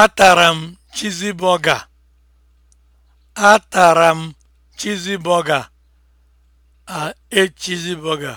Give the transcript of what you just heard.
Atara m chizi bọga. Atara m chizi bọga. A ate chizi bọga.